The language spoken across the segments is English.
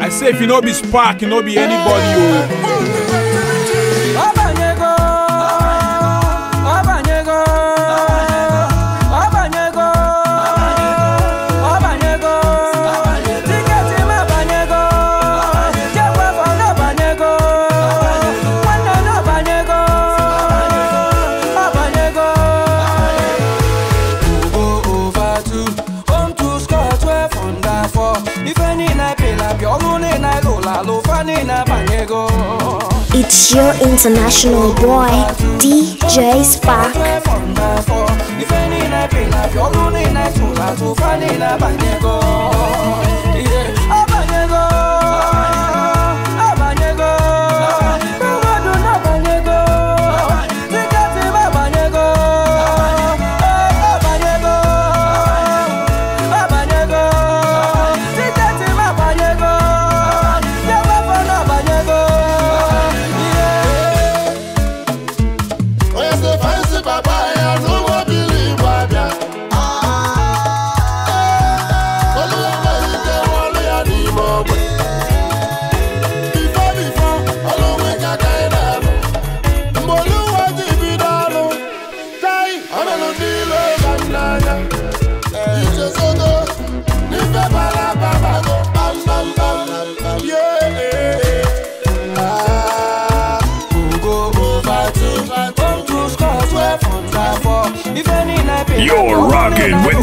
I say if you no be spark, you no be anybody. Oh. It's your international boy, DJ Spark.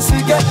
since we get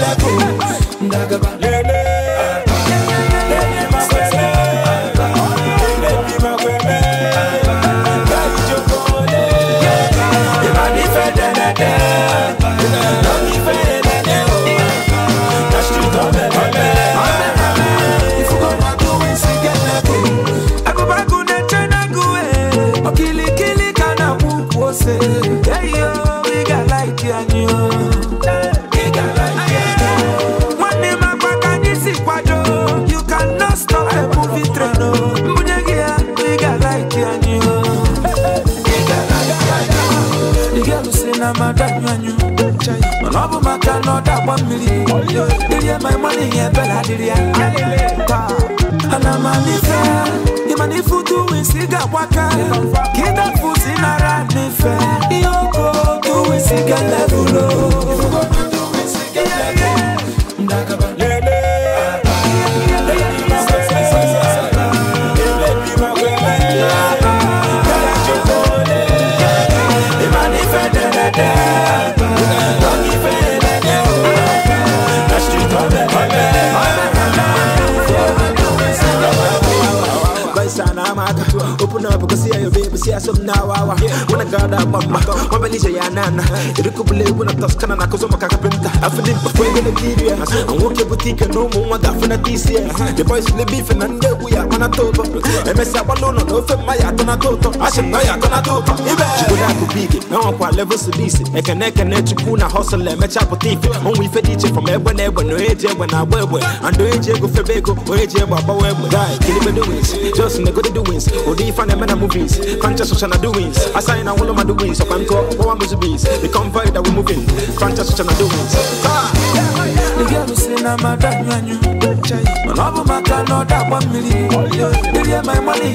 ya sunawawa Wana gada mama Mabalisha ya nana Irikubule wana taskana na kuzo makakapenta Afili mpakwege na kiria Anwoke butike numu mwanga afina tisia The boys le beef na ndegu ya mana toto Emesa walono na ufe maya tona toto Ashe maya tona toto Ibe Chikula kubiki Na wakwa level sudisi Eke neke ne chukuna hustle Emecha eh, potifi Onwe ife diche from ebwe na No eje ebwe na abwebwe Ando eje ego febeko O eje ebwe abawebwe Guy, kilibe doings Just nigga the doings Odi ifane mena movies Conscious Sushana doings. I sign all of my doings. So I'm called one busy bees. The convoy that we're moving. Crunch Sushana doings. The girl is in a madam, and money?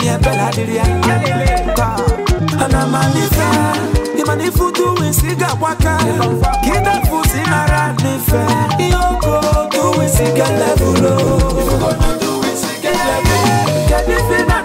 Yeah, Bella, did you? And I'm a different. Imani futu wisiga waka Kida fusi nara nife Yoko tu wisiga levulo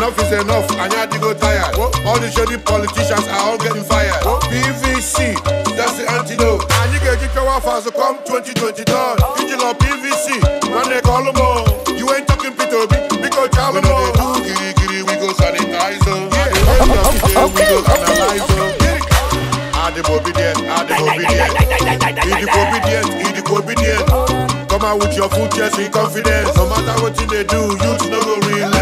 Enough is enough, Anyadi go tired. All the shady politicians are all getting fired. PVC, that's the antidote. And you get your fast to come 2020 done. You PVC, when they call them all. You ain't talking p b because y'all know. We do giri giri, we go sanitize them. Yeah, we go analyze them. Add the obedient, add the obedient. Be the obedient, be the obedient. Come out with your full chest, be confident. No matter what you they do, you no go relax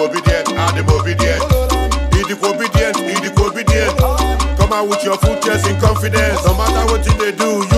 obedient, I'm obedient. Idic obedient, Idic obedient. Come out with your full chest in confidence. No matter what you they do, you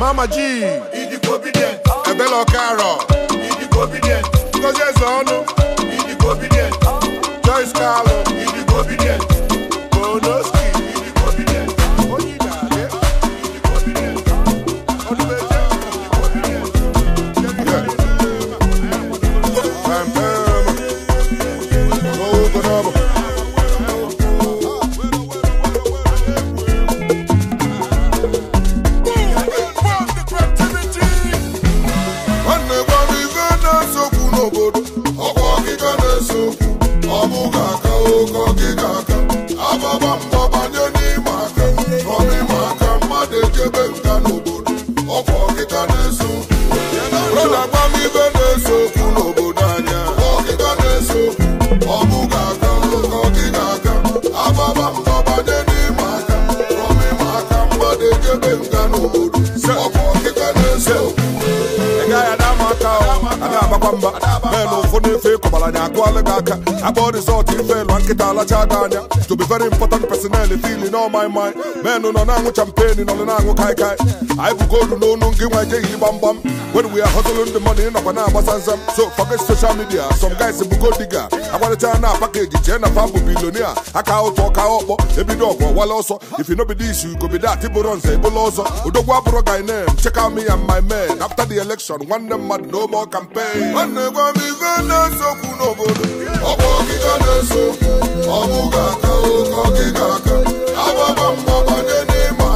Mama G. Idigo obedient. Ebelo Karo. Idigo obedient. I Ezonu. Idigo obedient. Joyce Carlo. ụkọ gị aka ababa mba banye n'ime aka n'ọba ime aka mmadụ echebe nka n'obodo ọkwa ọkịta na-eso brọda gbamibe na n'obodo anya ọkịta na ọ bụ aka ụkọ gị ga mba banye n'ime aka n'ọba ime aka mmadụ echebe nga n'obodo ọkwa ọkịta na-eso ọ a ga i na na-akụ alụ gị aka akpọ rizọtụ ifelu nkịta alacha ada to be very important personel fili na ọmai mai menụ nọ na-aṅụ champagne nọ when we are hustling the money ịnọkwa na-agbasa so forget social media some guys bụ godiga agbarịcha na pakeji jee na fa bụ bilonia aka ụtọ ọka ọkpọ ebido ọgwụ wala ọsọ if you know be this you could be that bụrụ nze ebụla ọzọ odogwu abụrụ guy name check out me and my men after the election them mmadụ no more campaign. ọ na-egwe m ife na n'obodo ọ bụ ọkịka na-eso ọ bụghị aka oke ọkịka aka agbaba mgbabanye n'ịma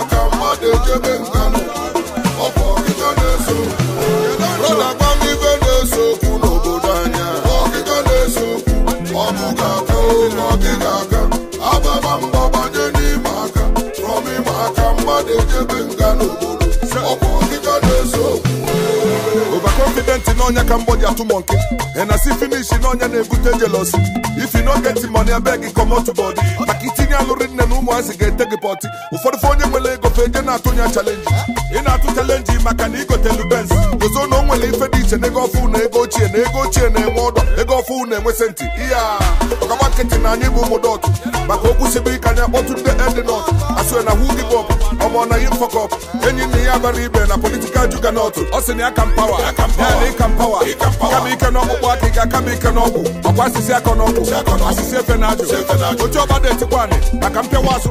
aka rọba ịma n'ọnya ka mgbọdị atụ ị na as finish n'ọnya na-ebute jealousy if you no get money gị comot body maka itinye alụrị nne na ụmụazị ga-ete gị pọtị ụfọdụ fe onye nwere ego fe eje na-atụ nya chalenji ị na-atụ chalenji maka na igotelu benz gozo na o nwere ife dị iche na ego ọfụ na ego ochie na ego ochie na-enwe ọdọ ego ọfụ na-enwe senti iya nkịtị na anyị bụ ụmụ dọt maka okwu sibe ka anyị akpọtụ ndị edinọt asụe na who give up ọmọ na yin fuck up enyi nna ya bara ibe na politikal juganọt ọ sị na ya ka mpawa ya na ịka mpawa kama ike n'ọkpụkpụ aka ị ga-akama ike n'ọgwụ ọkwa asịsị aka n'ọgwụ asịsị efe na ajụ oche ọba na-etikwa anyị maka mpịawa asụ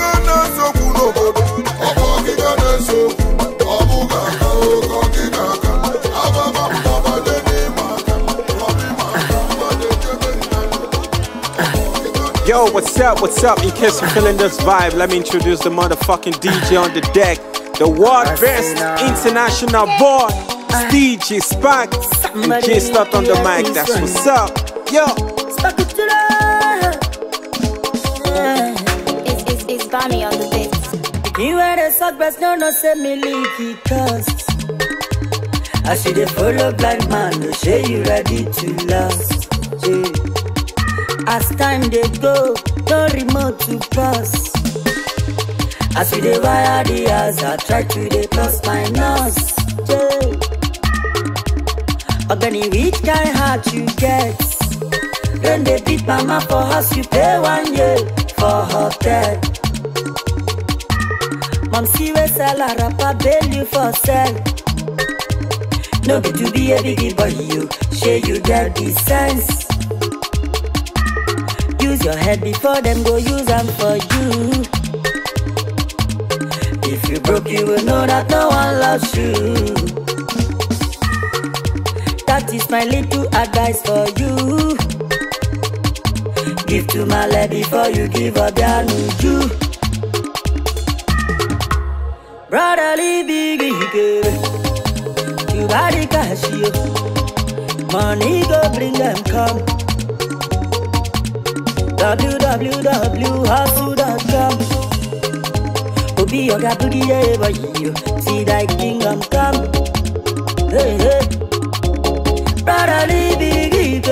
na-ese okwu n'obodo ọ bụ ọgịga na-ese okwu ọ bụghị aka oke ọgịga Yo, what's up, what's up? In case you're feeling this vibe, let me introduce the motherfucking DJ on the deck. The world best international boy, DJ Spark. And J Slut on the mic, that's what's up. Yo. It's, it's, it's Bonnie on the beat. You had the suck best, no, no, send me leaky cause. I see the follow blind man, no say you ready to last. Yeah as time dey go no remote to pass as we dey wire the house i try to dey plus minus yeah. ogbeni which kind heart you get rain dey beat mama for house you pay one year for hotel mom see wey sell her wrapper bail you for sell no be to be a big boy you shey you get the sense use your head before them go use them for you if you broke you will know that no one loves you that is my little advice for you give to my lady before you give a brotherly big you body cash you money go bring them come www.hustle.com To be your g e v e r you See thy kingdom come Hey, hey b r o t h e r l b g i e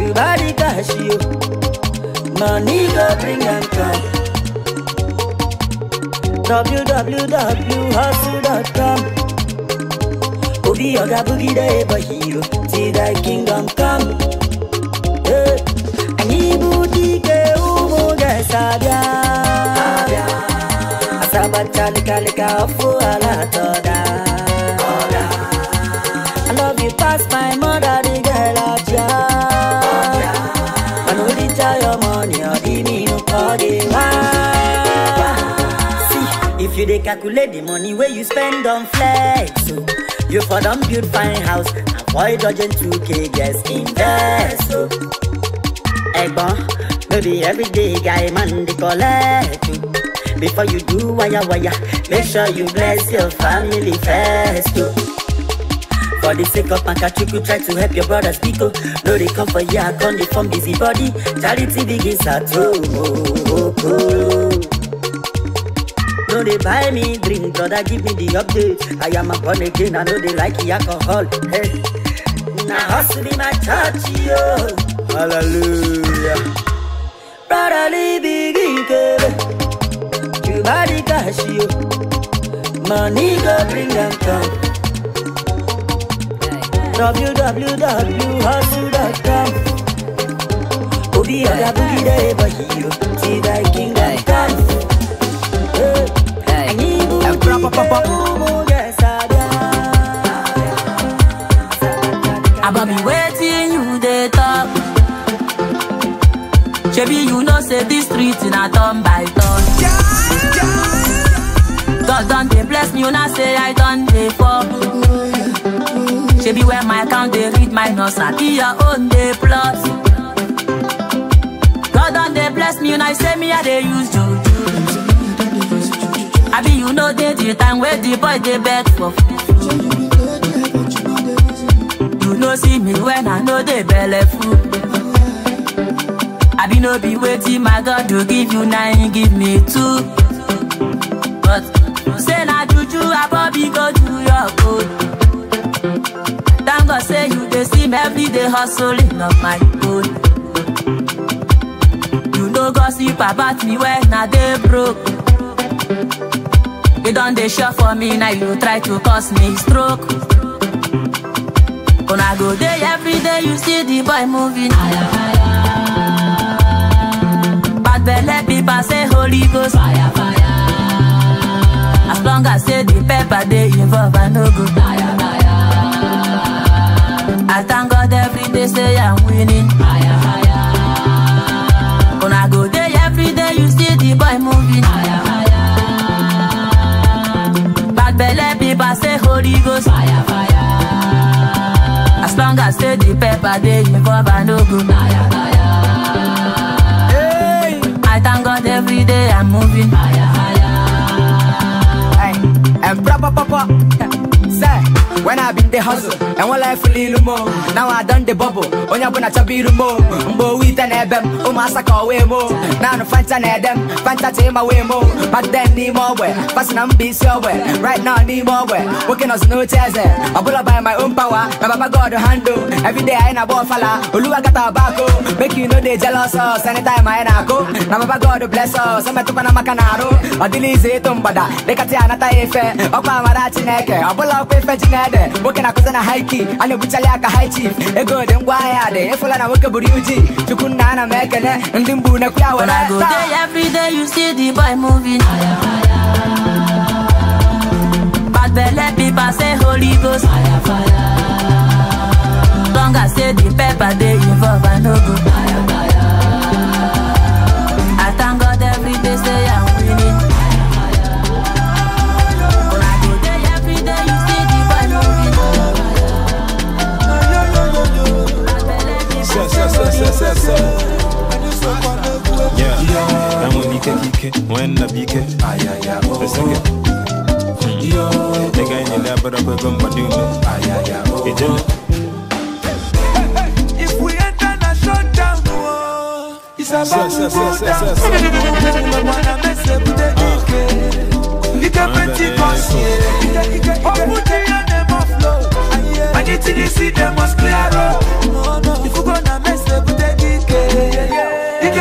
You body cash you Money go bring and come w w w h s c o m o b Oga b g i e v e r See thy kingdom come yes abia abia asabatalikanika ọfụ ala i love you pass my mother the girl ọja ọja i no dey tell your money ọdị nínú ọdị wá. see if you dey calculate the money wey you spend on flex So. You for them build fine house Avoid dodging 2k, yes, invest so. Ẹ̀gbọ́n No everyday guy man they collect you. Before you do waya waya, make sure you bless your family first too. Oh. For the sake of my you try to help your brothers Pico. No, they come for ya, come they form busy body. Charity begins at home. Oh, oh, oh, oh. No, they buy me drink, brother, give me the update. I am a born again, I know they like the alcohol. Hey, now hustle be my church, yo. Hallelujah. Rara Money go bring them come www.hustle.com Obi you See thy kingdom come Hey, hey, hey, hey, hey, hey, shebi you know say dis street a turn by turn god don they bless me You una say i done they fall shebi when my count they, read minus be your own they plus god don dey bless me You una say me i they use you. I be you know they the time wey the boy they beg for you no see me when i no they belle full i be no be waiting, my god to give you na him give me two but say na juju abobi go do your good thank god say you dey see me every day hustling up my own you no gossip about me when i dey broke you don dey sure for me now you try to cause me stroke una go every day, you see the boy moving. Ayah, ayah. veut les billes passer Holy Ghost. Fire, fire. As long as you the pepper, they involve and no good. Fire, fire. I thank God every day, say I'm winning. Fire, fire. When I go there every day, you see the boy moving. Fire, fire. Bad belly people say Holy Ghost. Fire, fire. As long as you the pepper, they involve and no good. Fire, fire thank God every day I'm moving. Higher, higher. Hey, and proper, proper when I been the hustle and one life fully lumo. Now I done the bubble, only when I chabi lumo. Mbo wheat and ebem, oh massa call way more. Now no fanta and them, fanta team away more. But then need more way, passing I'm be so way. Right now need more way, working us no chairs there. Eh. I pull up by my own power, my papa God handle. Every day I in a ball fella, Oluwa got tobacco. Make you know they jealous us oh, anytime I in a go. Now papa God bless oh, us, eh, eh, I'm a tupa na makanaro. Odili zetumbada, lekatia nata efe, okwa mara chineke, abula okwa efe chinede men nwoke na-akụzi a high key a na-ebuchali aka high chief ego dị ngwa ahịa dị ịfụla na nwoke buru uji chukwu nna ana m ekele ndị mbu na kwuya were everyday you see the boy moving bad belle people say holy ghost fire fire long as say the pepper they involve i know. sasa yeah. yeah. Yeah. Oh, yeah. Yeah. Yeah. Yeah. namwebike kike mwenda bike esenge negaendelea bado kwego mbadume ijele Anything you see, they must clear up. Oh. If you gonna mess up, they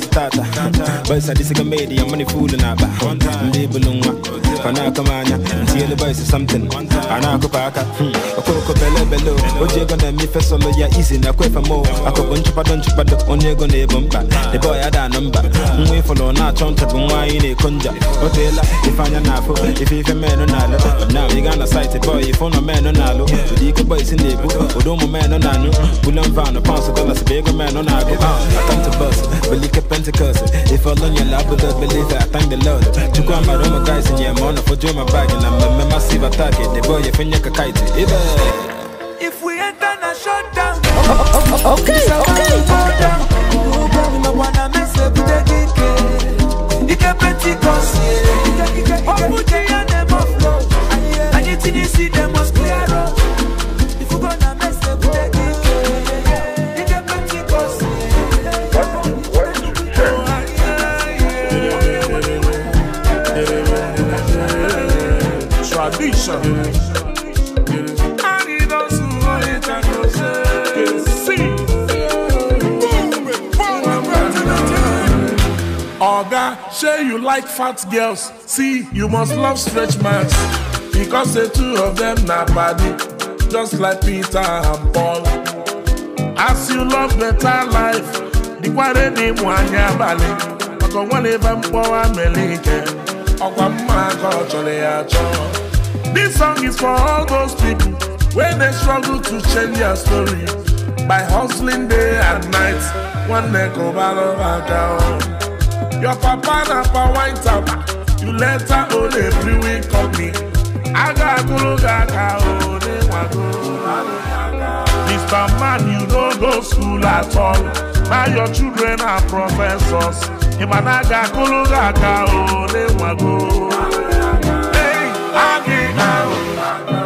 starter. But is a comedian, money fooling about. Label on wanakumanya ntiele boys something anakupaka okokopele hmm, belo oji ego na-eme ife solo ya izi na kwefe mo akụbụ nchụpado nchụpado onye ego na-ebu mkpa ebe ọ ya da anụ mba nwa ịfụlụ na-achọ nta bụ nwaanyị na-eko nja o teela ife anya na-afụ ife ife menụ na-alụ na ị gaa na saịtị bọị ife ụlọ menụ na-alụ ụdị ike boys na-ebu ụdị ụmụ menụ na-anyụ bulan vanụ paụnsụ dọlas bụ ego menụ na-agụ atọmtụ ah, bọs belike pentikọs ife ọlụ nyela abụdo belife atangdelod chukwu amara ụmụ gaịs nye ma ọ attack If we enter na shutdown oh oh, oh, oh, oh, okay, okay, okay. see them must nation. Yes. And he doesn't know it and knows it. Oga, say you like fat girls. See, you must love stretch marks. Because the two of them are body, just like Peter and Paul. As you love better life, the quarry nwanyị abalị. Maka onwe na ebe mkpọwa melike, ọkwa mma ka ọ chọrọ ya chọọ. This song is for all those people when they struggle to change their story by hustling day and night. One neck over over down. Your papa na pa wine tap, you her own every week of company. Aga guruga ka ode wago. Mr. Man, you don't go school at all. Now your children are professors. Imanaga guruga ka ode wago. I get out.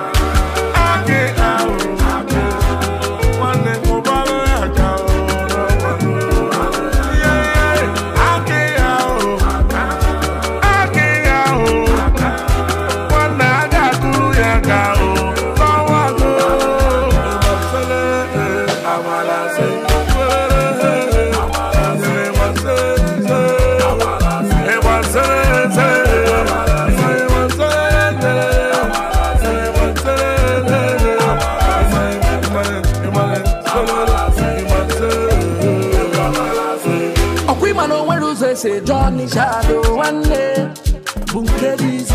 Johnny Shadow nwanne bụ nke dị izi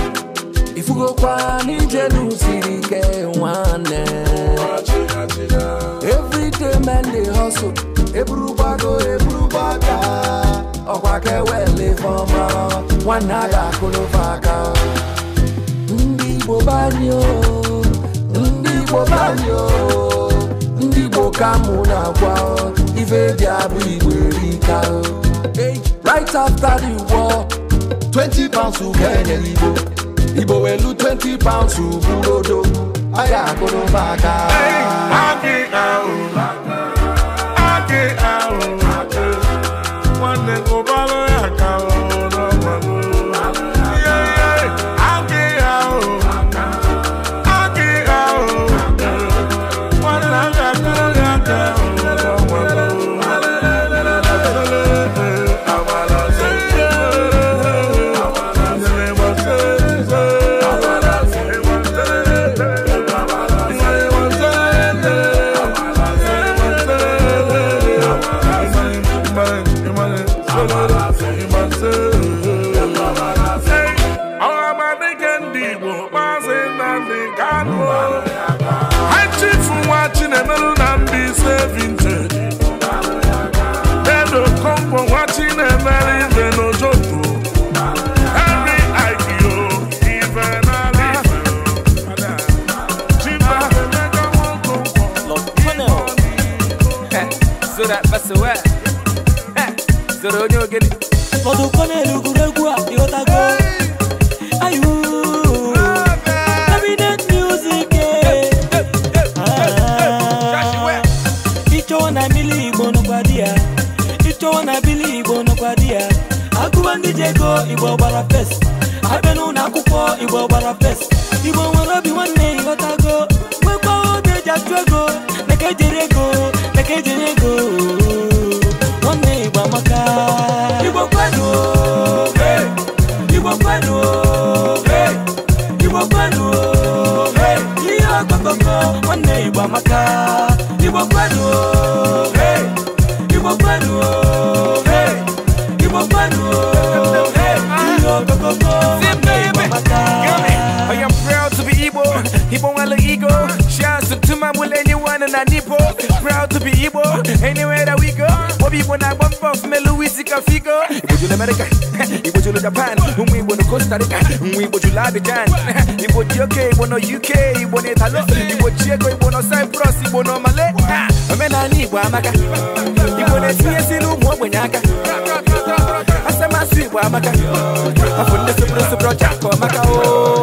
ifugokwa n'ije n'usiri ike nwanne everyday men dey hustle eburu eburu ọkwa a ga aka ndị Igbo banyo ndị Igbo banyo ndị Igbo ka na-agwa ife dị abụ Igbo right after the war. twenty pounds ukene igbo igbo welu twenty pounds uburodo aya akụrụ maka. Hey, oh, soro onye ogene fọdụkọ n'elu egwuregwu a ịghọtago ayu cabinet eh. ah. na bili igbo nọkwa di ya na bili igbo nọkwa di ya agụwa ndị ji ego igbo gbara fes abịa n'ụlọ akwụkwọ igbo gbara fes igbo nwere obi nwanne ịghọtago nwekwa oge eji achụ ego na Baby, when I bump off, me Luis Cafigo. Iboju America, Iboju Japan, Umi Bono Costa Rica, Umi Boju Ladigan, Iboju UK, Bono UK, Ibono Italo, Iboju Ego, Ibono Cyprus, Ibono Malay. Amena ni Ibo Amaka, Ibono TSC Lumo Wenyaka. Asema Sui Ibo Amaka, Afunde Supro Supro Japo Amaka. Oh.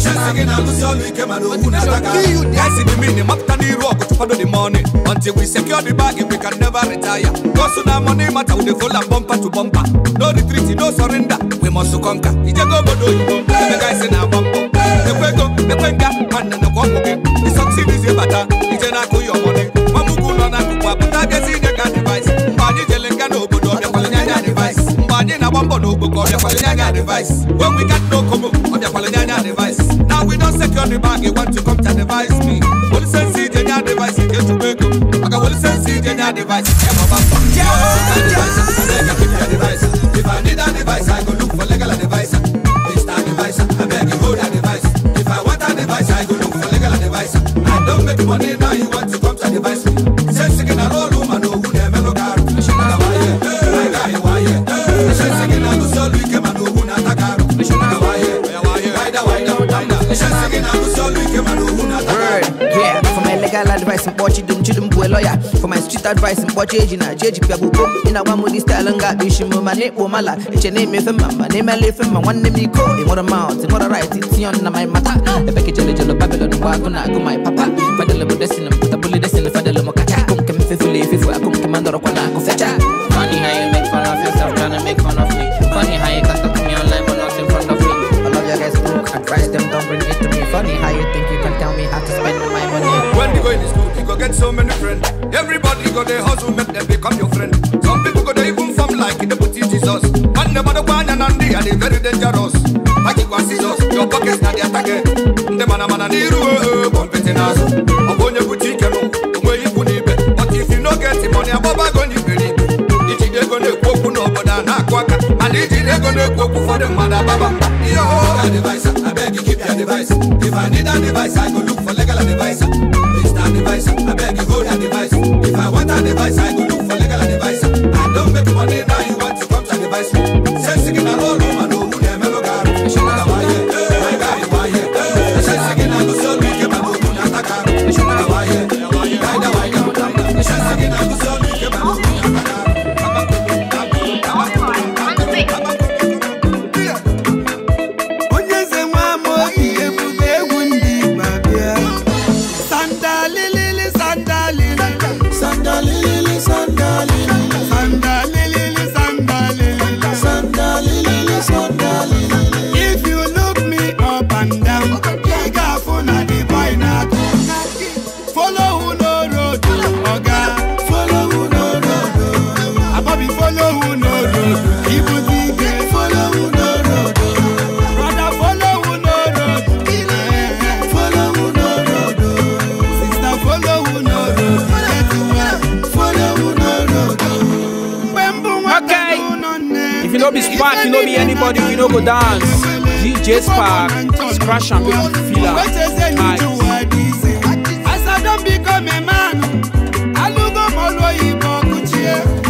Shinsigin and the meaning, after the rock, to follow the money. Until we secure the bag, we can never retire. Cause No our money matter, we full and bumper to bumper. No retreat, no surrender, we must conquer. It's a go, go, do it. The guys in our bumper. The Quego, the Quenga, and the Kwamogin. The succeed is a matter. It's an Aku your money. Mamukuna, Kupa, Tagazinaka device. Mani Jelenga, no good, or oh, the Palanyana device. Mani Nabambo, no good, or oh, the Palanyana device. When we got no Komo, or oh, the Palanyana device. get your bag, you want to come to advise me. What is sense in your device? You get to make up. I got what is sense in your device. Yeah, my bad. Yeah, yeah, yeah. shit advice mkpọ cheji na cheji pịa bụ bom ị na-agwa m ụdị staịlụ nga akpa isi m ma na-ekpo mala eche na-emefe mma ma na-emela efe mma nwanne m iko ịnwere maut ịnwere rit tion na my mata ebe ka jelejelo babilon bụ agụ na agụ my papa fadele bụ desin m pụtabụli desin fadele m kacha akụ nke m fefula efefu akụ nke m ndọrọkwa na akụ fecha Funny how you make fun of yourself, trying make fun of me. Funny how you got to me online, but not in front of me. All of your guys broke, them, don't bring it to me. Funny how you think you can tell me how to spend my money. When you go in school, you go get so many friends. people go they hustle, make them become your friend. Some people go they even form like in the booty Jesus. Man, the man of one and they are very dangerous. I keep one scissors, your pockets not the attack. The man of man and the room, one petting us. I'm on your booty, can you? Where you put it? Eh. But if you don't get the money, I'm about to go in. It's either going to go for no, but I'm not quack. And it's either going to go for the mother, Baba. Yo, I beg you, keep your device. If I need a device, I go look Spark, you know anybody, we no go dance. DJ Spark, scratch and people feel As I don't become a man, I look up all the way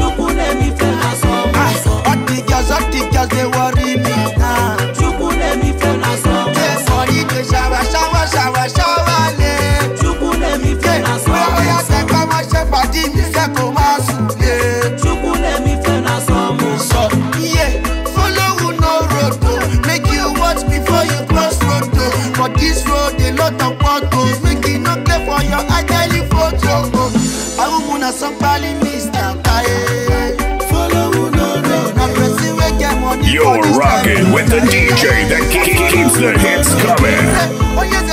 somebody Mr. Kaye. Follow who no no. Now money. You're rocking with the DJ that keeps the hits coming. Oh,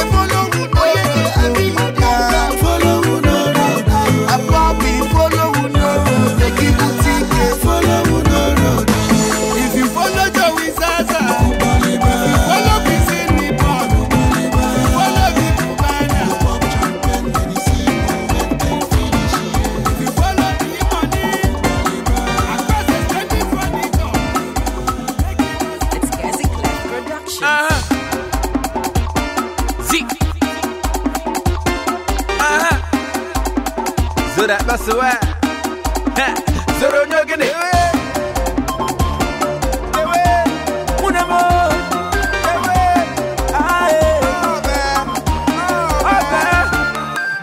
Soro nyogene we Ewe Munemo Ewe Ae Ope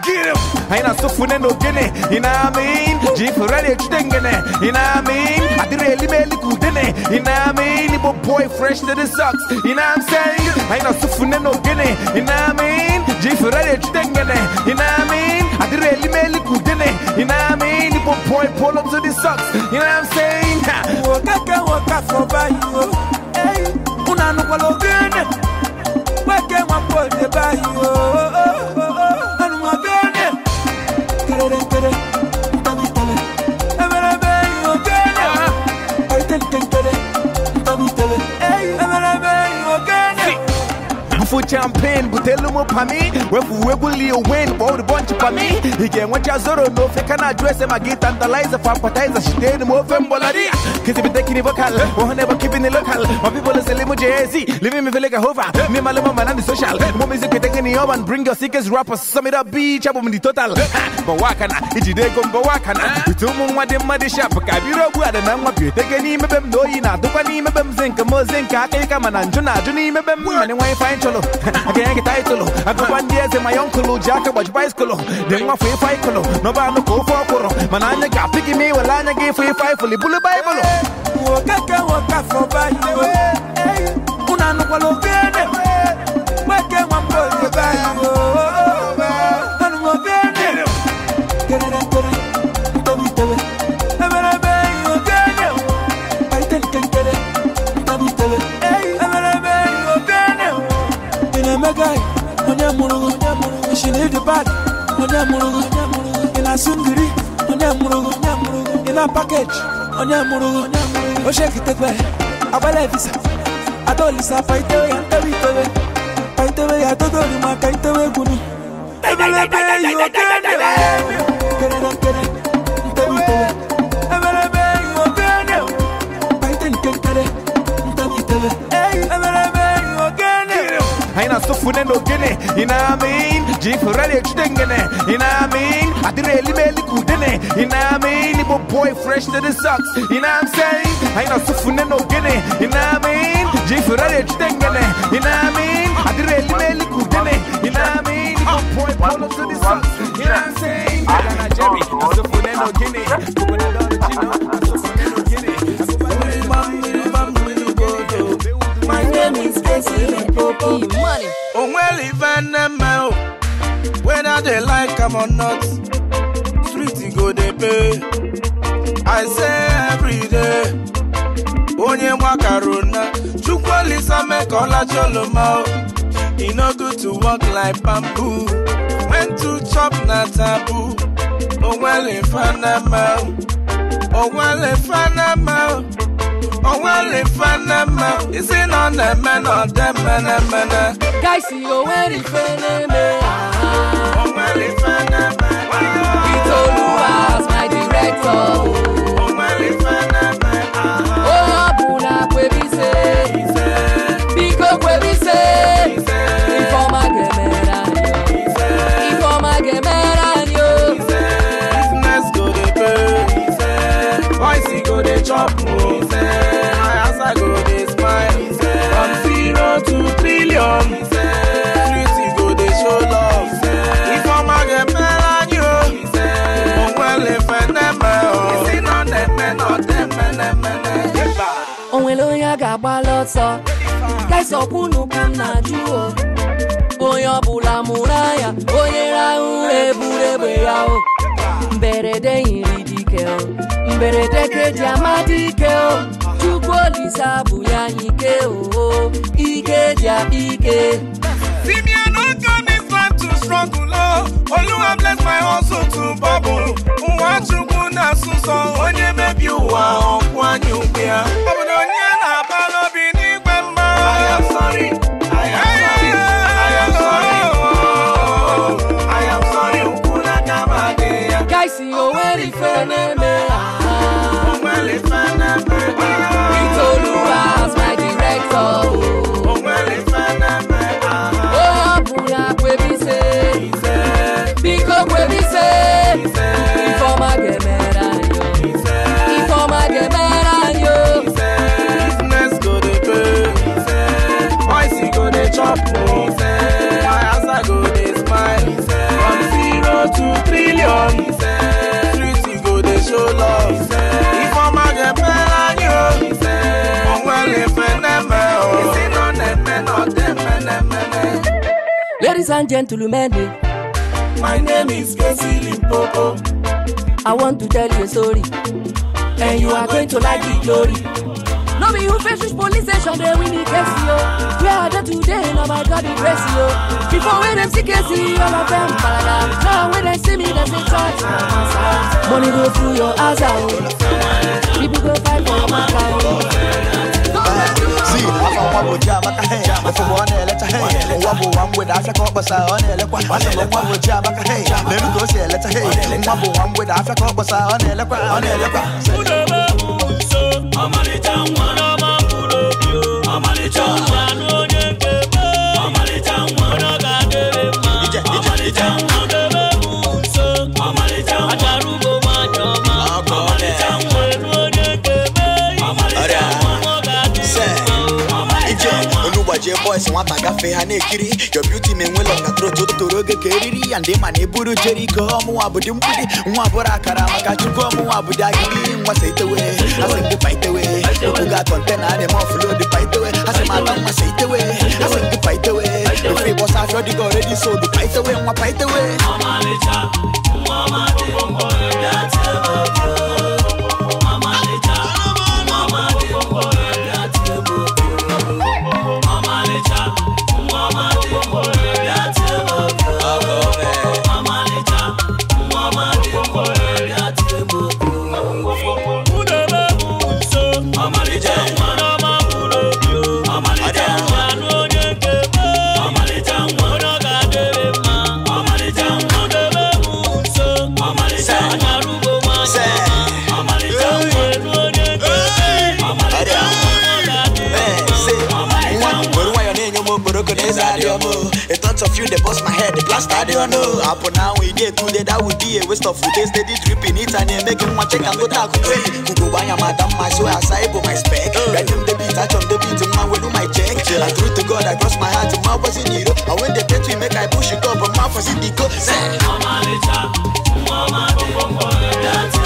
Get him Aina sofune no gene Ina amin Jifurele chitengene Ina amin Adire elime elikudene Ina amin Ibo boy fresh to the socks Ina I'm saying Aina sofune no gene Ina amin Jifurele chitengene Ina amin Adire elime elikudene money. You know what I mean? You put point pull up to the socks. You know what I'm saying? Work out, can work out for by you. Hey, una no follow good. Work out, one boy, they buy for champion butelu mu pami we weguli you win Kwa me. He pami Ige mwacha zoro no and address. the lies I feka na dresse Magi tantalizer fampatizer Shiteni mwofe mbolaria Kizi biteki ni vocal are oh, never keeping it local My people is elimu JZ Living me feel like a hover Me maluma manandi social Mo music ketenge the urban Bring your sickest rappers Sum it up beach in mdi total Bawakana Ijide gomba wakana Bitumu mwade mwade shop Kabiro buada na mwapyo Tege ni mebem Doi na dupa ni mebem Zinka mo zinka Kika mananjo na juni mebem Mane wai fine cholo colo, ganhei título. A culpa de é my uncle, já acabou de bicycle. Dei uma free fight colo, no bar no corpo coro. Mananya ga pick me, well anya give free fight fully bully bible. Woka ka woka for by Una no kwalo gene. Wake one she leave the bad. Onye murugu, in a singiri. Onye murugu, in a package. Onye murugu, o oh, shake it Abale visa. Adolisa fight away and carry it away. Fight away, I don't know, my kind away, you are getting sofune no gene ina mean jifurali chudengene ina mean adireli meli kudene ina mean ibo boy fresh to the socks ina i'm saying aina sofune no ina mean jifurali chudengene ina mean adireli meli kudene ina mean ibo boy polo to the socks ina i'm saying gana jerry sofune no my name is Casey Popo. They like am or not street go dey pay i say everyday onye nwakarona chukwuolisa make cholo oloma e no good to walk like bamboo when to chop na taboo Oh oh oh well, well, onwere fanama onwere fanama onwere on isi men, ọ na-eme them men, na odemmenemene gaisi onwere ife na-eme Ìtòlúwa my director. agbalị ọsọ kesọkwunu ka m na-ajụ o onye ọbụla mụrụ anya onye rahụ ụra eburu egbe ya o mberede yiri dike o mberede keji amadị ike o chukwu olise abụ ya n'ike o ike ji akpa ike Olúwa bless my hustle to bubble. Nwa Chukwu na-asụsọ onye mebi ụwa ọkwụ anyị ugbu Obodo onye Ladies and gentlemen, my name is Casey Limpopo. I want to tell you a story, and you are going to like the glory. No me who fetch which police station they win the case, yo. Where are they today? No, my God, the grace, yo. Before we them see case, all of them paradise. Now when they see me, they say touch my answer. Money go through your eyes yo. Oh. People go fight for my life see Afa nwa bụ Chiamaka hei Ofumu ọ na-eleta hei Nwa bụ nwa mgbede afịa ka ọ kpọsara ọ na-elekwa Asị m nwa bụ Chiamaka hei Leru ka o si eleta hei Nwa bụ nwa mgbede afịa ka ọ kpọsara ọ na-elekwa Ọ na-elekwa ma gafe ha na your beauty ma enwela ọnatara otu toro oge ka eriri ya ndị ma na-eburu jeriko ọmụnwa bụdị mgbidi nwa bụrụ akara maka chukwu ọmụnwa bụdị agịgị nwasa itewe asị ndị paitewe okwu ga-atọ ntena adị ma ọfụlụ dị paitewe asị m atọ nwasa itewe asị ndị paitewe ofe ịgbọsa afịọ dịka ọredi so dị paitewe nwa paitewe ọmalịcha Mama ọma mama mkpọrọ dị atịa Pastor, they don't know. Happen now we get today, that would be a waste of food. They steady dripping it and they make him want check and go talk to me. Who go buy a madam, my soul, I say, my spec. Right him, they beat, touch on the beat, my way do my check. I through to God, I cross my heart, my was in you. And when they get to make I push it up, my was in the go. Say, Mama, little, Mama, That's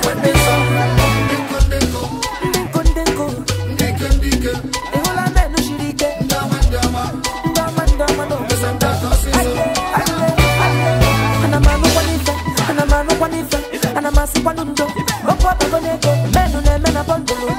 Men Menu ne mena pon bulu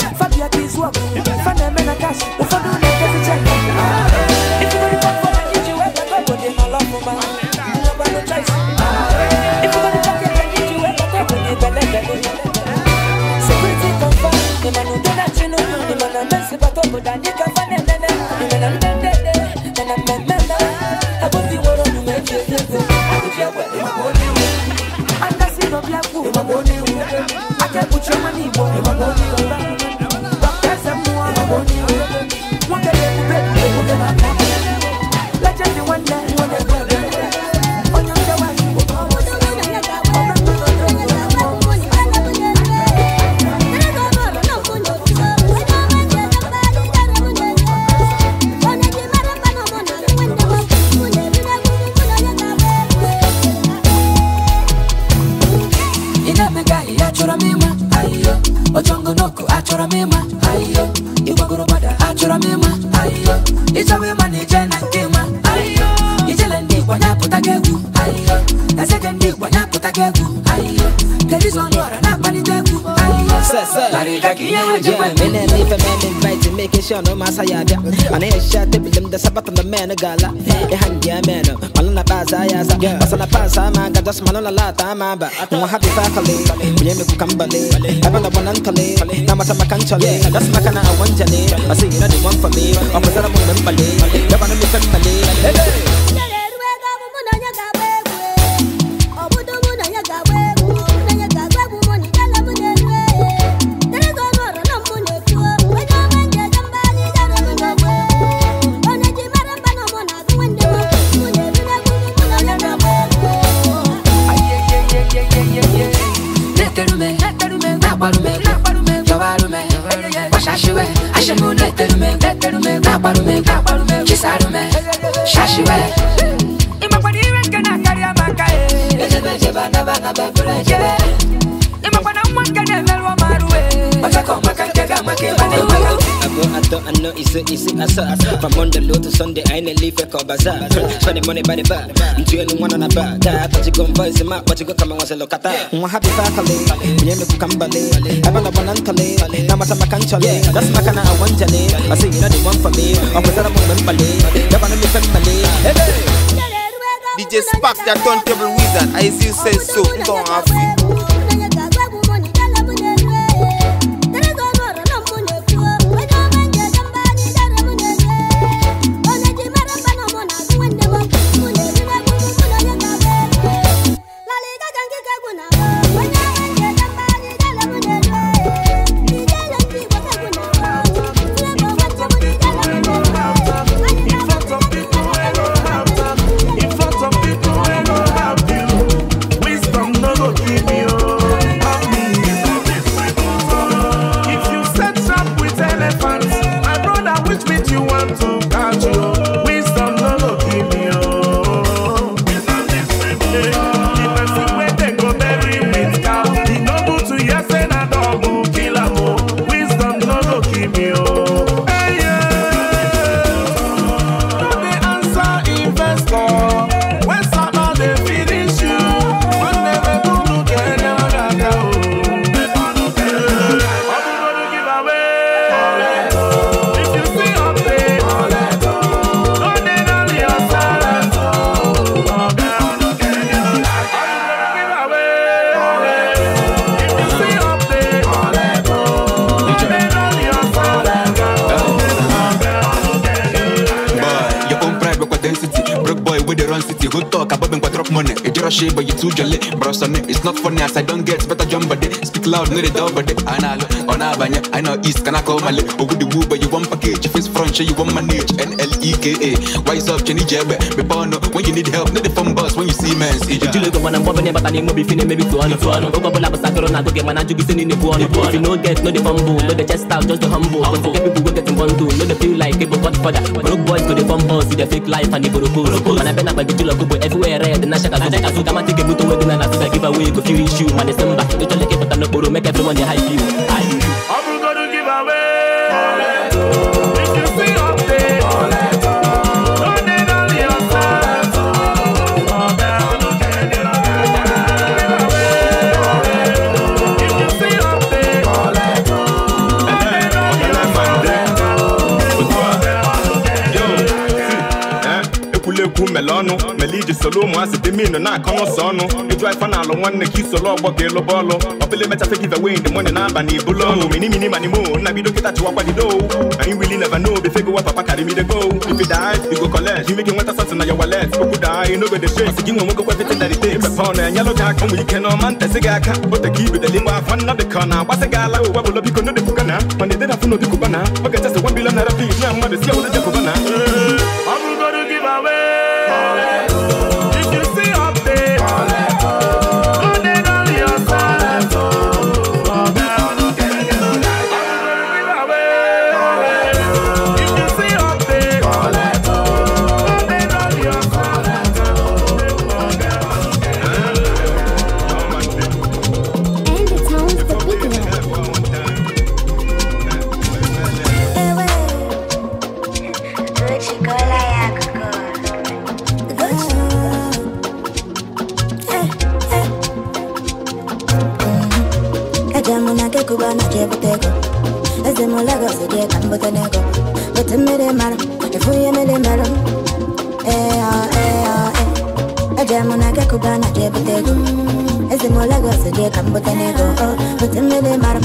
shano masaya da ane sha te bilim da sabata na mena gala e hangia mena malana baza ya za basana pasa ma ga das malana la ta ma ba mo happy family bilim ku kambale abana banan tale na mata makantale das makana awanjale asira de one for me opasara mo nambale da bana mi kambale hey so easy, easy assault. From Monday low to Sunday, I ain't leave a call bazaar. Spending money by the bar. I'm doing one on a bar. That, but you go and voice him out, but you go come and watch a look at that. I'm happy faculty. When you come ballet, I'm on a banantale. Now I'm a cantale. That's my kind of one jelly. I say, you know, the one for me. I'm with a woman ballet. They're one of the family. Hey! DJ Spark, that turntable wizard. I see you say so. Go on, Africa. shit, but you too jolly. Bro, it's not funny as I don't get better jump, but they speak loud, no, they double, but they analog na abanye I know east can I call male Ogu the but you want package Face front show you want my niche? N-L-E-K-A Wise up chenny jebe Me bono when you need help Need the phone bus when you see men see ya Jule go wana mbombe ne bata ni mo bifine maybe tuano tuano Ogo bola basa kero na goge mana jugi sini ni buono If you no get no the fumble No the chest out just the humble I But forget people go get in bundle No the feel like people got further Broke boys go the fumble See the fake life and the boroko Man I been up by the jule go everywhere red Na shaka go Kasu kama tike buto wedina na Give away go feel issue man December Don't you like it but I am not borrow Make everyone they hype you Hype you ihu mele ọnụ mele iji solu ụmụazị dị minu na-akọ n'ụsọ ọnụ ịjụ ife na alụ nwanne ka isolu ọgbọ ga elu bọọlụ ọbịla mechafe give away the money n'aba na ibulu ọnụ mini mini mani mo nna bido kịta chụwakwa dido anyị wili never know befe gowa papa karị mide go if you die go collect you make nweta something na your wallet okwu daa you no go dey gị nwe nwoke kwefete dari te ipepe ọnụ enyelụ gị aka nwere ike na ọma ntesi gị aka o ka ibideli mgbe afọ nna dị ka ọ na-agbasị gị ala ụwa bụlọ biko no dị kubana mana ededafụ n'obi kubana oge chesi wa bilọ nara bi na mmadụ si ọwụrụ jekubana butegu Ezimola go seje kam botanego Oh, butem me de maram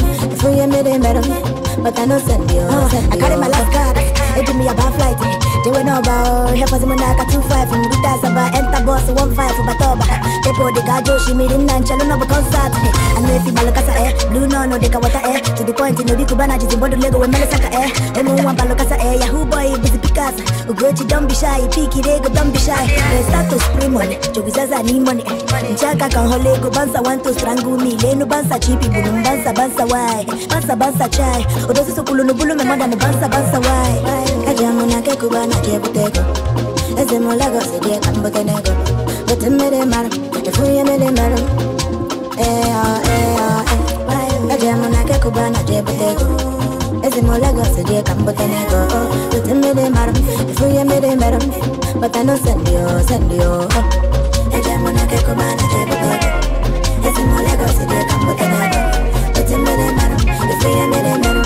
But I know send you oh, I carry my life card It give me a bad flight they were no bow, here for Simon Naka 2-5 From Guta Saba, enter boss, 1-5 for Batoba They pour the gajo, she made in Nancha, no but concert eh. I know if you balokasa eh, blue no no, they can water eh To the point, you know, Kubana, just in Bodo Lego, when Melisaka eh Emu one balokasa eh, Yahoo boy, busy Picasso Ugochi, don't be shy, Piki Rego, eh, don't be shy They start to spray money, Jogizaza need money eh. Chaka can hole go bansa, want to strangle me Leno bansa, cheapy. bulum bansa, bansa, why Bansa, bansa, chai Odosi oh, so kulu no bulu, me mother, no bansa, bansa, why jamu na ke kuba na ke butego Eze mulago se die kambo kenego Bote mere maro, te fuye mere maro Eh oh eh oh eh Na jamu na ke kuba na ke butego Eze mulago se die kambo kenego Bote mere maro, te fuye mere maro Bote no sendio, sendio Na jamu na ke kuba na ke butego Eze mulago se die kambo kenego Bote mere maro, te fuye mere maro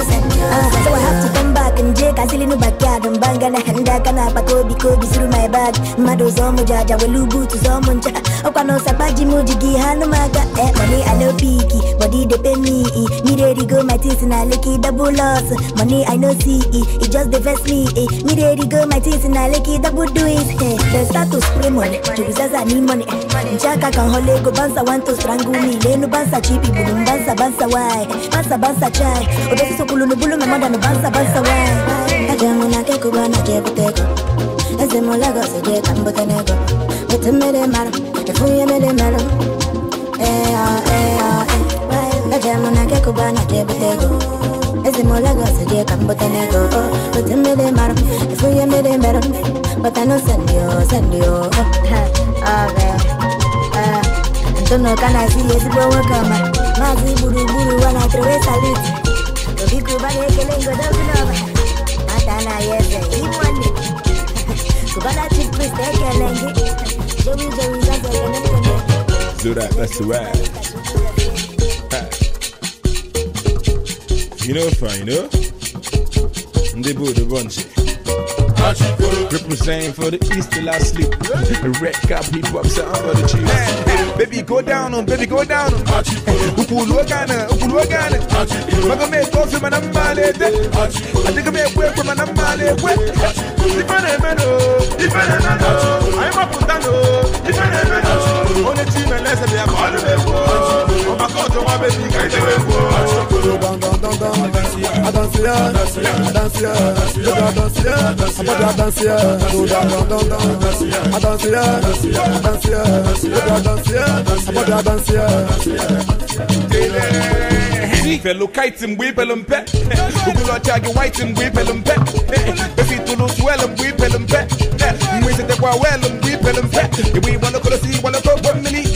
uh, so I have to come back and jake asili no backyard mbanga na henda kana pakobi kobi through my bag mado zomo jaja welubu tu zomo ncha okwano sabaji mujigi hanu maga eh money I know, picky body they pay me ready go my teeth na licky double loss money I no see it just the vest me eh me ready go my teeth na licky double do it eh the status spray money as I need money Jaka can hole go bounce, want to strangle me. Lenu banza chipi bulum banza banza why? banza banza chai. Odosi so kulunu bulu, my mother no bounce, bounce, why? Kajamu na keku bana kebuteko. Ese molago se je kambote nego. Bete mele maro, efuye mele maro. Eh ah eh ah eh. Kajamu na keku bana kebuteko. ezimolaga sejeka mbotenego otemele maro efuyemele mbero batano sendio sendio oh, Tono kana si ezigbo nwoke ọma maazị gburugburu ụwa na trewe salut obiko ụbara that's the rap. You know, fine, you know? They bought a bunch. Resign for the east till I sleep. Red cap, hip hop sound for the chief. Man, baby, go down on, baby, go down on. Ukulu gana, ukulu gana. Maga me kofi manam male de. Adiga me kwe kwe manam male kwe. my number ifane meno. I'm up on dano, ifane On the team and less of them all the way. Oh my God, my baby, do not you wait? Down, down, down, down. I dance here, I dance here, I dance here. I dance here, I dance here. I don't see her. I don't see her. I don't see don't see her. we pelum pe Kugulo chagi waitim gui pelum pe Besi pelum pe Mwisi te kwa welum gui pelum pe Iwi wano kolo si wano to bwamini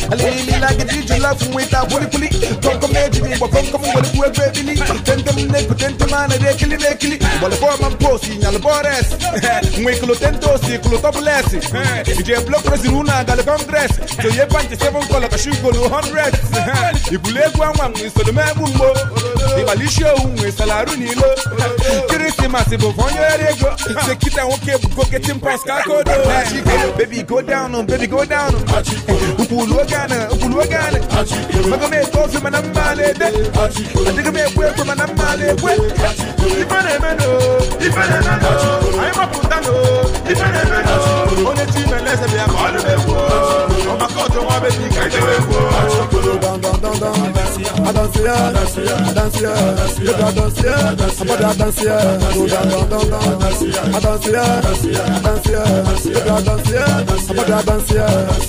lagidi jula fun weta puli puli tonko meji mi bo konko mu wole kuwe kwe bili tente mu neko tente mana de kili de kili wole bo man posi nyal bores ngwe kulo tento si kulo topless ije block presi runa gal congress to ye pante seven kola ka shugo no hundred ibule kwa nwa mu solo me bu mbo ibalisho unwe salaru ni lo christmas bo fonyo erego se kita woke bu go get him pass baby go down oh, baby go down on oh. upulu gana upulu wagane maga tofi mana male ayi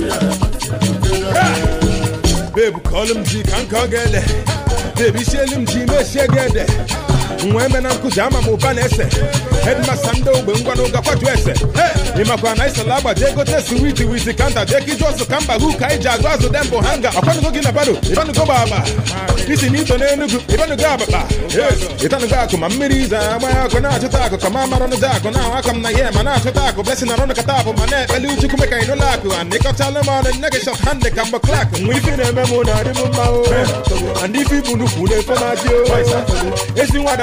ma Ve bu kalımcı kanka gele De bir şelimci meşe gele nwe na nkụzi ama m ụba na-ese hedmasta ndị ogbe ngwa ụga kwatu ese ịmakwa na isala agbaji egote siwiti witi kanta deki iju ọsụ ka mba gụ ka anyị agụ azụ dembo hanga ọkwanugo gị na bado ịbanugo gbagba isi na ito n'enugu ịbanugo abakpa ịtanugo akụ ma mmiri iza agba akụ na-achụta akụ ka ma mara akụ na ahụ aka m na ihe ma na-achụta akụ blesi na rọnụkata abụ ma na-ekpeli uchukwu meka anyị n'ụlọ akụ and ịkọchala m ọnụ nne gị shọt handị ka mgbe klak nwe ife na-eme m na-adị m mma o and ife ibu nnukwu na-efe na-adị o ezi nwada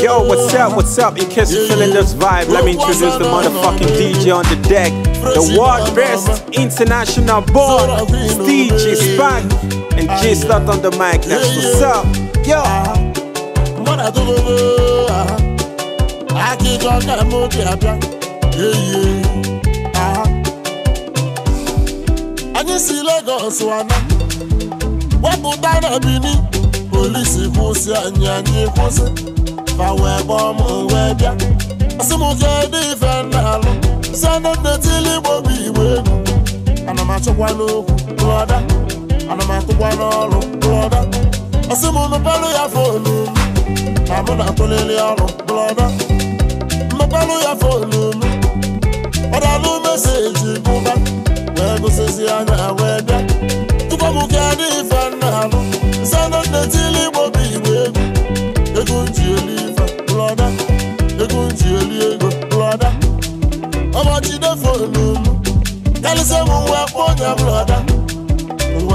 Yo, what's up? What's up? In case you're feeling this vibe, let me introduce the motherfucking DJ on the deck. The world best international born, Steve is And J start on the mic next. Yeah, What's up? Yo! Uh-huh. Uh-huh. I oh, uh-huh. I Mọ́nà tó gbogbo akíkan Yeah, mú kí I Anyị si Lagos wana wepụta na Benin polisi kwụsị anyị anyị kwụsị fa wee gbọọ m wee bịa asị m kedu ife na-alụ si anụ the igbo bụ igbo elu ana m achọkwa n'okwu lọda ana m atụkwa n'ọrụ blọda asị m unu palụ ya fonu na mụ na-atụlili ọrụ blọda mmepalụ ya fonu m ọdalụ meseji bụba wee gụsịzi anya wee bịa tupu m ka dị ife nna alụ nsana nnetili igbo bụ igbo egwu ego nji eli ife blọda ego nji eli ego blọda ọbọchị defonu m karịsịa m nwa kpọ onye blọda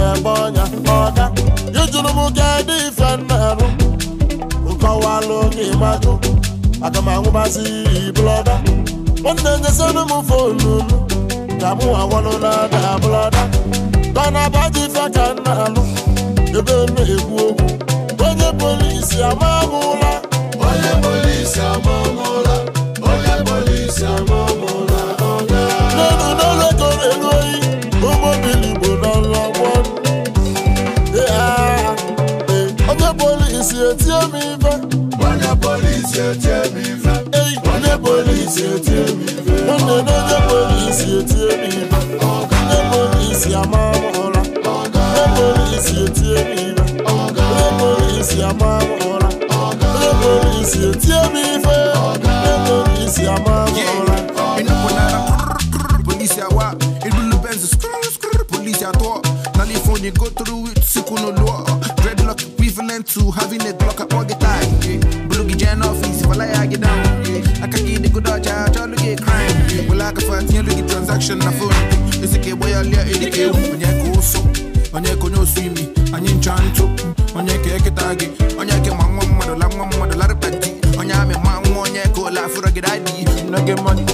na-eme ọnya ọga ịjụrụ m kedụ ife na-arụ nkọwalụ ka ịmajụ aga m anwụbazi blọda ọ na-enyesịrụ m fonu ka mụ awalụ na ada blọda kanaba dị ife ka m na-alụ ebe m na-ekwu okwu onye polisi amamụla onye polisi amamụla onye polisi amamụla ọga n'elu n'elu ekoro elu onye polisi etí mi fẹ́. wọ́n ní polisi etí mi fẹ́. wọ́n ní polisi etí mi fẹ́. wọ́n ní lóye polisi etí mi fẹ́. wọ́n ní polisi amáwòrán. wọ́n ní polisi etí mi fẹ́. wọ́n ní polisi amáwòrán. wọ́n ní polisi etí mi fẹ́. wọ́n ní polisi amáwòrán. inú kò náírà polisi àwa inú ló bẹ́ẹ̀ sùn polisi àtọ́ nálẹ̀ fún ni go through it síkú ló lọ́ọ̀. covenant to having a Glock all the time. Yeah. Bulugi office, if I lie, I get down. I can get the good dodge, I try to get crime. Well, I can find the transaction, I phone. It's a kid, boy, I'll let it go. When you go so, when you go no swimming, and you chant to, when you get a target, when you get my mother, la mama, the lot of petty, when you have a man, when you go laugh for a good idea, you know, get money.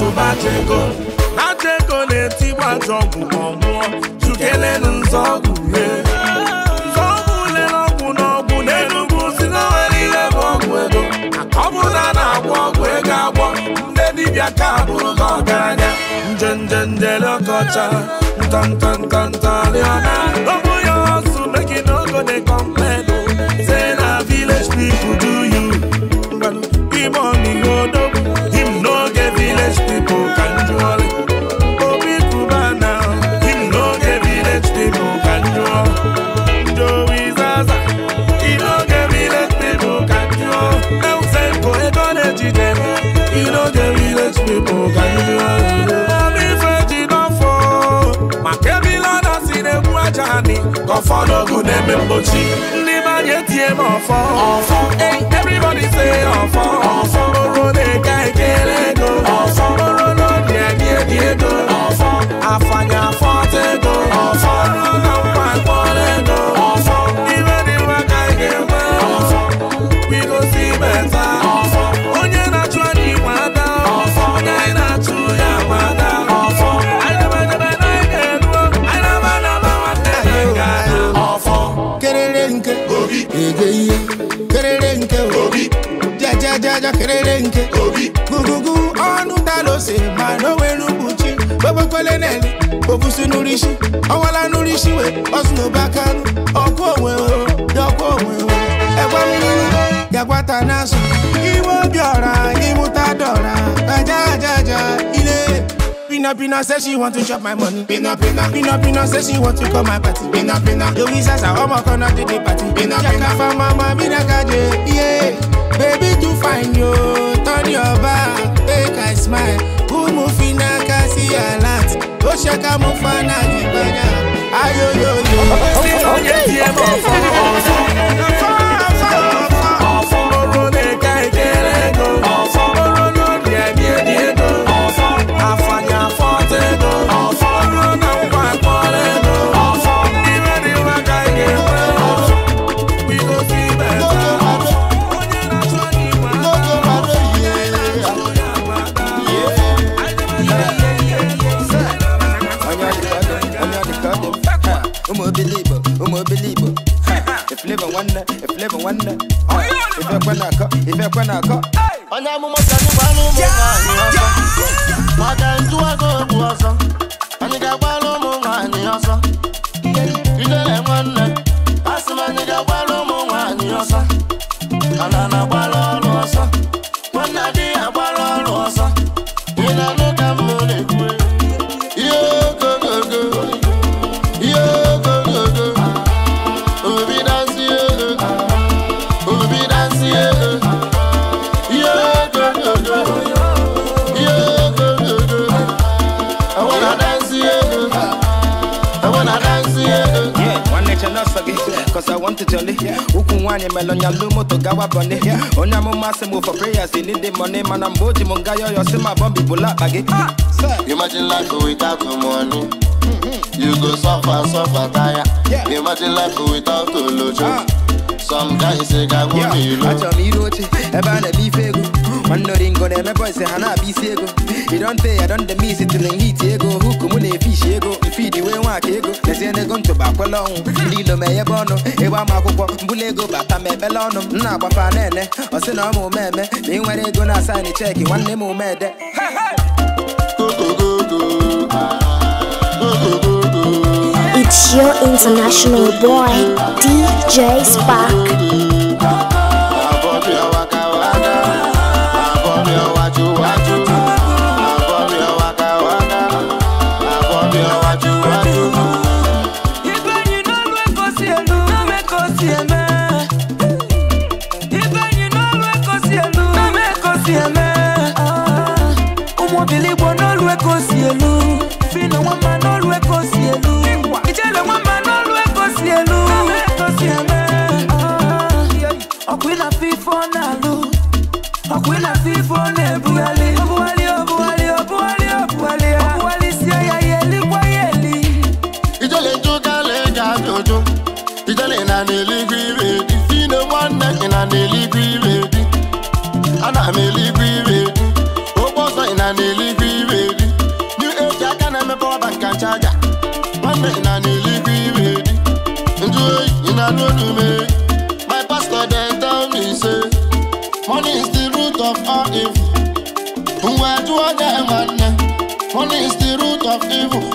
atụ bachego bachego na-etigbu atụ ọgwụ ma ọ mụọ chukelenu nzọ ọgwụ rie dibịa ka bụrụ gị ọgaranya njenje njelekọcha ọ̀fọ́dọ́gùn dem mbochi. ndị mmanya etie m ọfọ ọfọ everybody say ọfọ ọfọ oro na-eka ekele ego ọfọ oro na obi ebi ebi ego ọfọ afanya afọ ego ọfọ oro na mma akpọrọ ego ege ihe kerere nke obi jajajaja kerere nke obi gugugu ọnụ dalose ma n'owere ụbụchi gbobokwele neli obusi n'urisi ọwala n'urisi we ọsụ n'obakanụ ọkụ onwe dọkwa onwe egbe mmiri gagwata n'azụ iwe obiọra imụta dọra ajajaja Pina Pina say she want to chop my money. Pina Pina. Pina Pina say she want to call my party. Pina Pina. Yo we sasa omo kono to the party. Pina Pina. for mama mina kaje. Yeah. Baby too fine yo. Turn your back. Make I smile. Who move na kasi alert. O shaka mo fana jibanya. Ayo yo yo. Okay. okay. okay. okay. okay. okay. okay. money, man, I'm Boji Mungayo, you see my bumpy bullet baggy. Ah, Imagine life without the money. Mm-hmm. You go suffer, suffer, tire. Yeah. Imagine life without the lojo. Ah. Some guys say, I won't yeah. be low. I tell me, you know, Kondo ringo ne me boy say hana bi sego. You don't say I don't the miss it till in heat ego. Hook mu ne fish ego. Feed the way wa kego. They say they gon to ba kwalo. Lilo me ye bono. E wa ma kokwo. Mbule ego bata me belono. Na kwa fa nene. O se na mo meme. Me nwere ego na sign check. One name mo me de. Go go go go. Go go go. It's your international boy, DJ Spark. My pastor they tell me say, money is the root of all evil. Where do I get money? Money is the root of evil.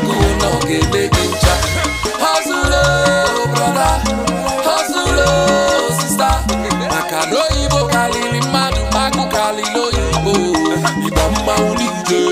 agụụ hustle brother hustle sister maka na oyibo karịrị mmadụ magụ karịrị oyibo ịgba mmanwụ n'ije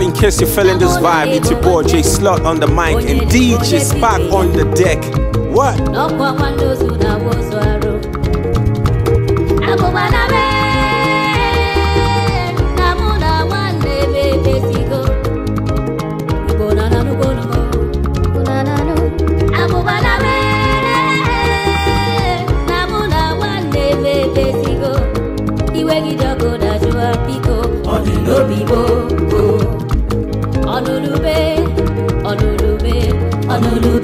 In case you fell in this vibe, it's your boy J Slot on the mic and DJ Spark on the deck. What? కనులు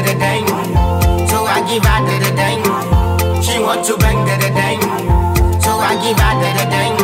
da dang. So I give her the dang. She wants to bang the dang. So I give her the dang.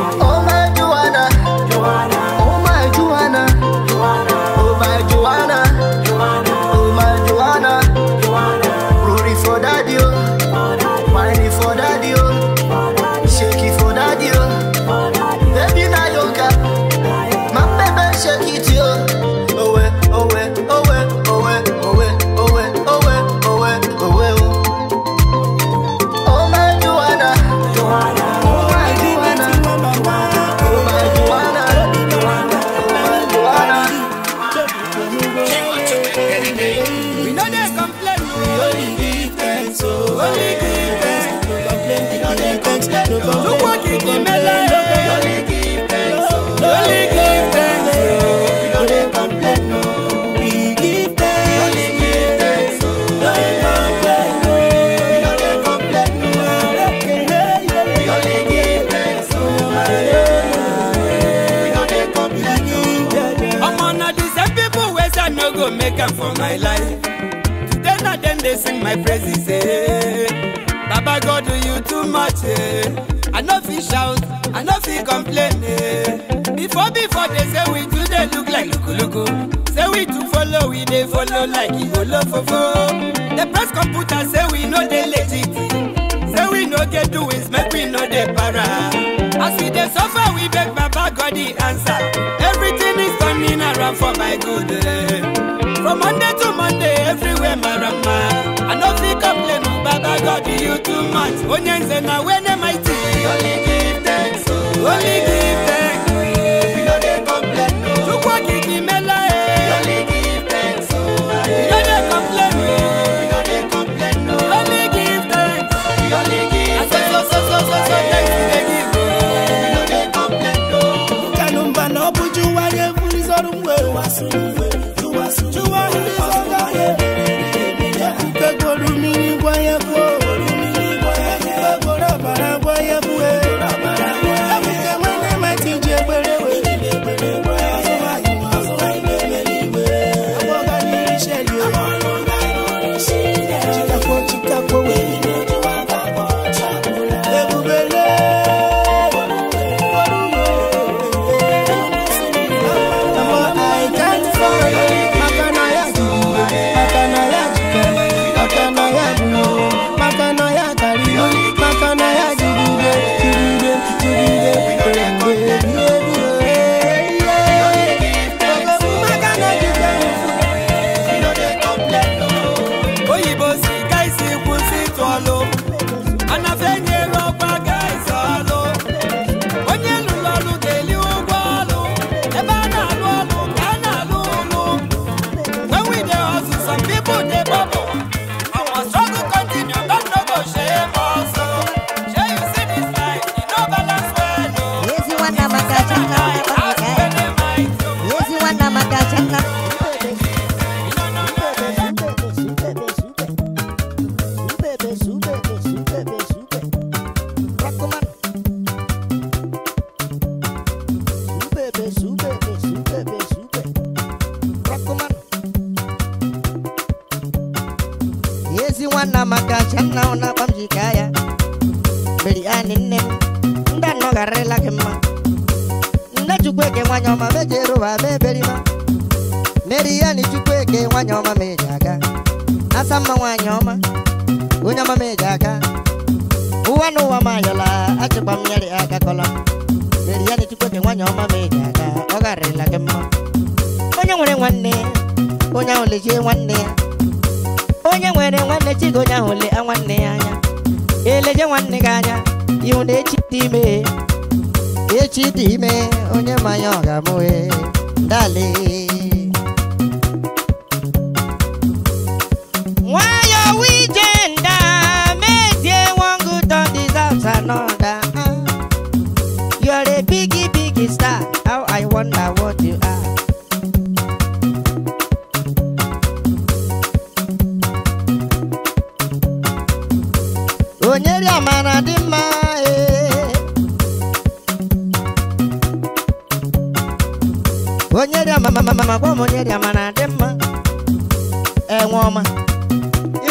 God do you too much, eh? I no fit shout, I no fit complain, eh? Before, before they say we do, they look like luku luku. Say we do follow, we they follow like Igolo fofo. The press computer say we know they legit. Say we no get doings, make we know they para. As we dey suffer, we beg Baba God the answer. Everything is turning around for my good. Eh. From Monday to Monday, everywhere my rama. I no fit complain, oh, Baba God you too much. Onyenze na wene mighty. Only give thanks, oh. only give thanks.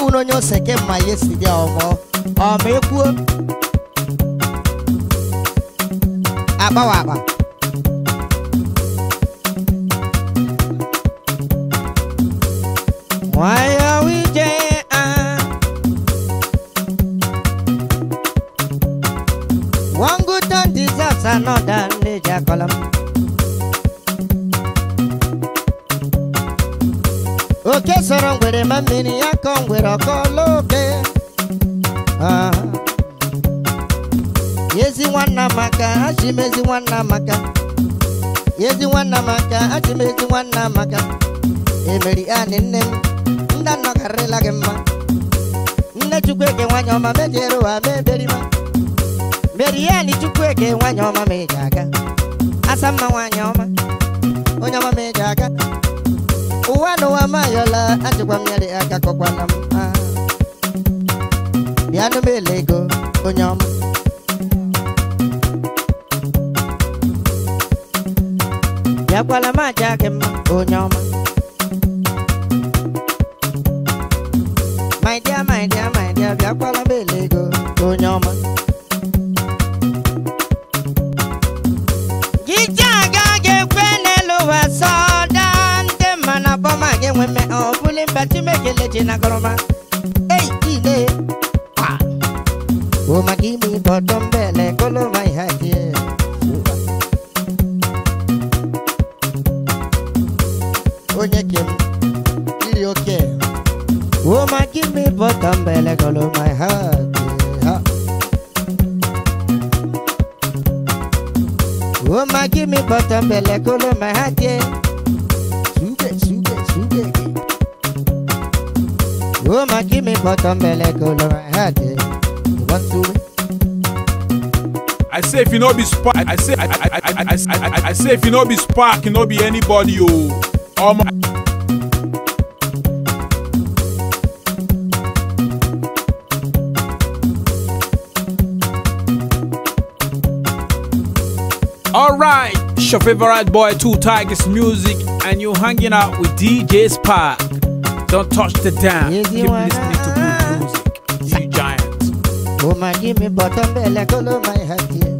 uno nyo seke ma yesi dia omo o me ku aba wa aba why are we jay one good turn deserves another nature column oke sọrọ ngwere ma mmiri ya kọ ngwere ọkọlọoke ah. ezi nwanna maka achị m ezi nwanna maka ezi nwanna maka achị m ezi nwanna maka emeri anị nne m nna nnọkarịla gị mma nne chukwueke nwanyị ọma mejere ụwa mee berima meri ya nị chukwueke nwanyị ọma ma aka. aga asa mma nwanyị ọma onye ọma ma eji aga ụwa n'ụwa mayọla achịkwa mmiri aka kọkwana m bịanụ m ele ego onye ọma bịakwala m aja my dear my dear my dear bịakwala m ele ego onye ọma mẹmẹ ọ̀gbọ́n bẹ tí méjèlè ti na kọrọma. eyi ilé wa. o ma kí mi bọ̀dọ̀ mbẹ̀lẹ̀ kóló ma ìhà tiẹ̀. o nye kem kiri o kẹ. o ma kí mi bọ̀dọ̀ mbẹ̀lẹ̀ kóló ma ìhà tiẹ̀. o ma kí mi bọ̀dọ̀ mbẹ̀lẹ̀ kóló ma ìhà tiẹ̀. Woman, give me bottom belly, my head. Eh. You want to win? I say if you no be spark, I say I I I I I, I, I say if you no be spark, you no be anybody Oh my. Alright, it's your favorite boy, Two Tigers Music, and you're hanging out with DJ Spark. Don't touch the dam. Easy Keep one. listening to good music. You giant. Oh, my, give me bottom belly, color my head here.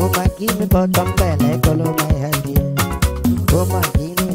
Oh, my, give me bottom belly, color my head here. Oh, my. give me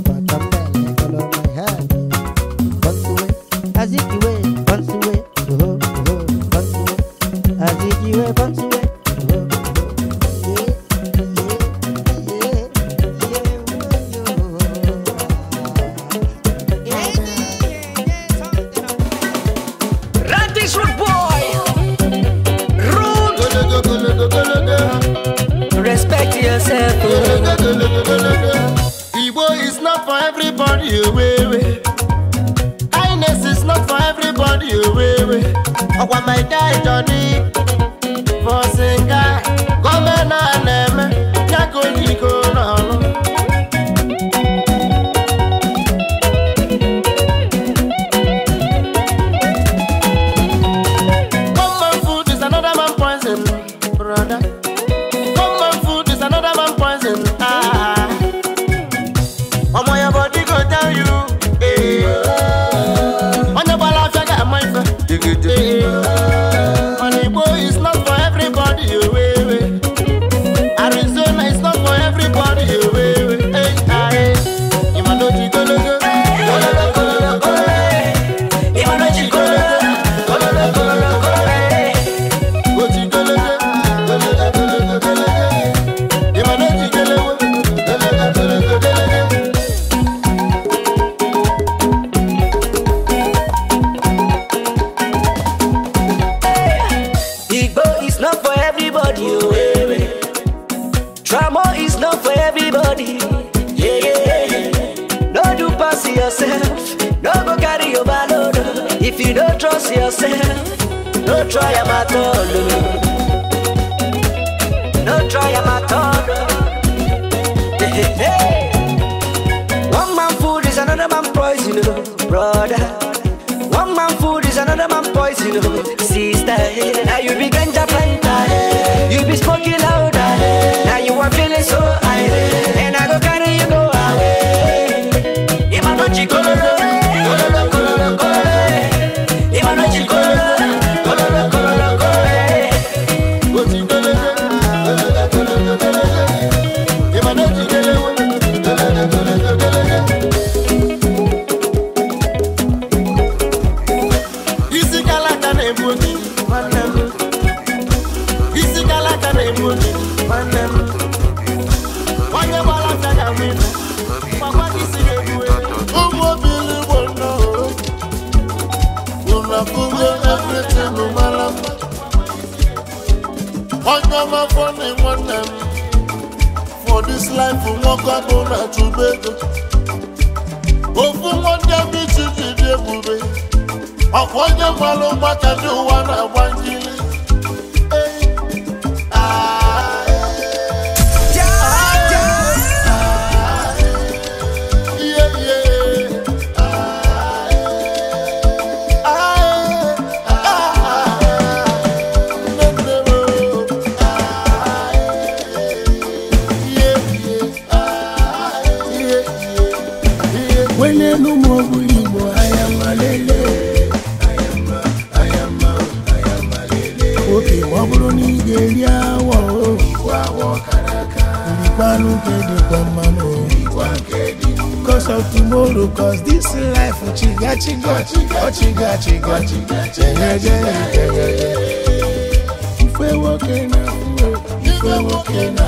tomorrow Cause this life oh, Chiga chiga chiga chiga chiga chiga chiga chiga Ife woke na fuwe Ife woke na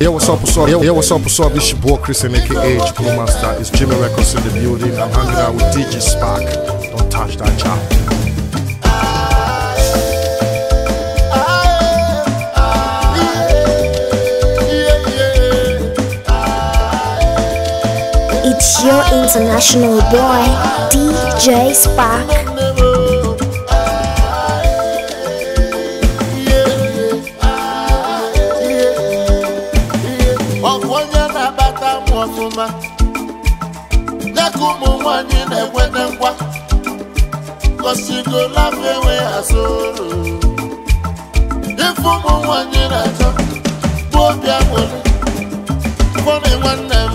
Yo, what's up, what's up? Yo, what's up, what's up? This your boy Chris and aka Chico Master. It's Jimmy Records in the building. I'm hanging out with DJ Spark. Don't touch that child. your international boy, DJ Spark. ọfụma nye nwanyị na-enwete ngwa gosigolafọ enweghị nwanne m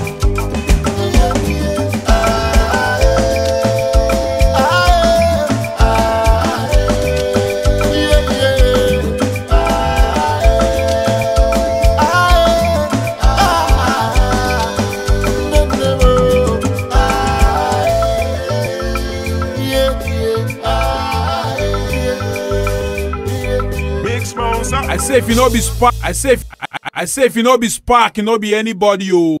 say if you no be spark i say if i say if you no be spark you no be anybody o. Oh.